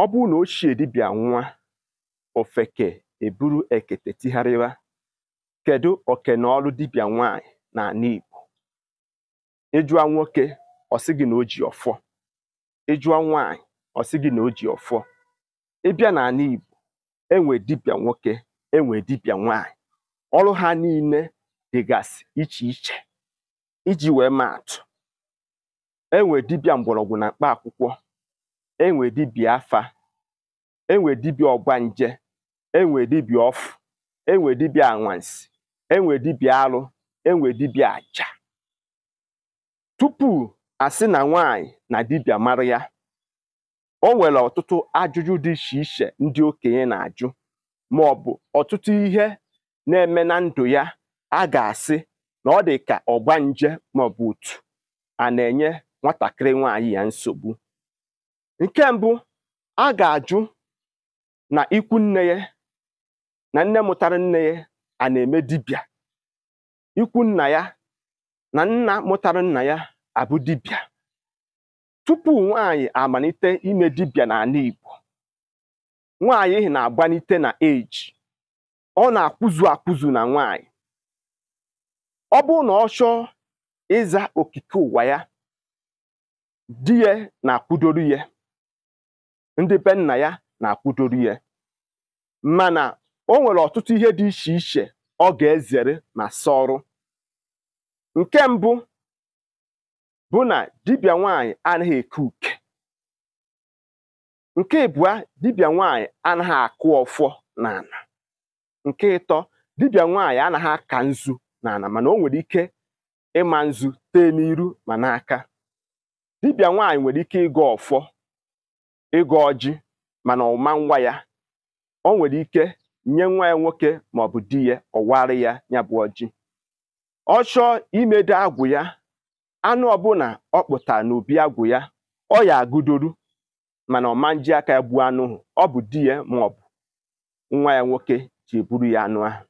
ọ bụrụ na ochie dibịa nwa ofeke eburu ekete tigharịwa kedu okenọlụ dibịa nwaanyị n'ala Igbo ịjụa nwoke ọ gị na o ji ọfọ ịjụa nwaanyị ọ gị na o ji ọfọ ịbịa n'ala Igbo enwe dibịa nwoke enwe dibịa nwaanyị ọrụ ha niile dịgasị iche iche iji wee maa atụ enwe dibịa mgbọrọgwụ na mkpa akwụkwọ enwe dibịa afa enwe dibịa ọgbanje enwe dibịa ọfụ enwe dibịa anwansi enwe dibịa alụ enwe dibịa aja tupu a asị na nwaanyị na dibịa mara ya o nwere ọtụtụ ajụjụ dị iche iche ndị okenye na-ajụ ma ọ bụ ọtụtụ ihe na-eme na ndụ ya a ga-asị na ọ dị ka ọgbanje maọbụ otu a na-enye nwatakịrị nwaanyị ya nsogbu Nke mbụ a ga-ajụ na ikwu nne ya na nne mụtara nne ya a na-eme dibịa ikwu nna ya na nna mụtara nna ya abụ dibịa tupu nwaanyị amalite ime dibịa n'ala Igbo nwaanyị na-agbanite na eji ọ na-akwụzu akwụzu na nwaanyị ọ bụrụ na ọ chọọ ịza okike ụwa ya di ya na-akwụdoro ya ndị be nna ya na-akwụdoro ya mana o nwere ọtụtụ ihe dị iche iche ọ ga-ezere ma sọrụ nke mbụ bụ na dibịa nwanyị anaghị eke uke nke ịbụa dibịa nwanyị anaghị akụ ọfọ n'ala nke ịtọ dibia nwanyị anaghị aka nzu n'ala mana o nwere ike ịma nzu tee n'iru ma n'aka dibịa nwanyị nwere ike ịgọ ọfọ ịgọ ọjị mana ọma nwa ya o nwere ike nye nwa ya nwoke ma ọ bụ di ya ọwarị ya ya bụ ọjị ọ chọọ imedo agwụ ya anụ ọbụla ọ kpụtara n'obi agwụ ya ọ ya agụdoru mana ọma nji aka ya gbuo anụ ọ bụ di ya ma ọ bụ nwa ya nwoke ji eburu ya anụ ahụ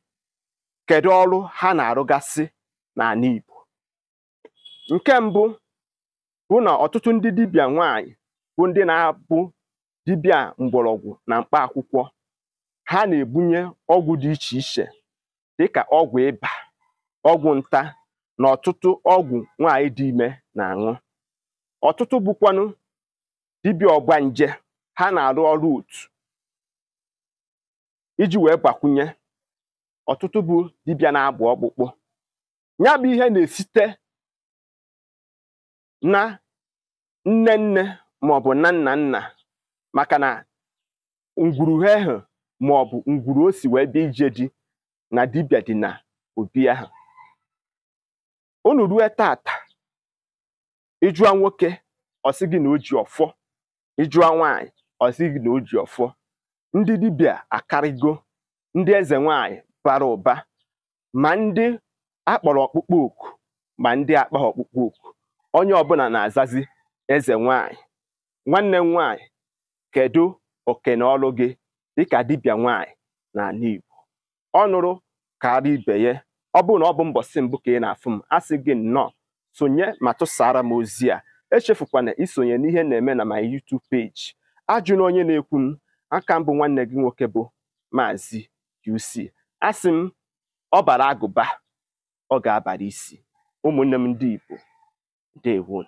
kedu ọrụ ha na-arụgasị n'ala Igbo nke mbụ bụ na ọtụtụ ndị dibịa nwanyị bụ ndị na-abụ dibịa mgbọrọgwụ na mkpa akwụkwọ ha na-ebunye ọgwụ dị iche iche dịka ọgwụ ịba ọgwụ nta na ọtụtụ ọgwụ nwaanyị dị ime na-aṅụ ọtụtụ bụkwanụ dibịa nje ha na-arụ ọrụ otu iji wee gbakwunye ọtụtụ bụ dibịa na-agba ọkpụkpụ ya bụ ihe na-esite na nne nne maọbụ nna nna nna maka na ma ahụ bụ ngwuru o si wee bịa ije na dibia dị na obi ahụ unu rue tata ịjụa nwoke ọsị gị na o ji ọfọ ịjụa nwaanyị ọsị gị na o ji ọfọ ndị dibia akarịgo ndị eze nwaanyị bara ụba ma ndị akpọrọ ọkpụkpọ oku ma ndị akpa ọkpụkpọ oku onye ọbụla na-azazi eze nwaanyị nwanne m nwaanyị kedu oke na ọlụ gị dịka dibịa nwaanyị n'ala Igbo ọ nụrụ karịa ibe ya ọ bụrụ na ọ bụ mbọsị mbụ ka ị na-afụ m a sị gị nnọọ sonye ma tụsara m ozi a echefukwana isonye n'ihe na-eme na my YouTube page ajụna onye na-ekwu m aka mbụ nwanne gị nwoke bụ maazi UC asị m ọ bara agụba ọ ga-abara isi ụmụnne m ndị Igbo ndewo